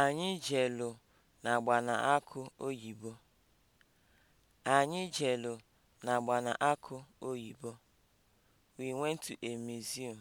Anyị jelu n'agbamakwụkwọ oyibo. Anyị jelu n'agbamakwụkwọ oyibo. We went to a museum.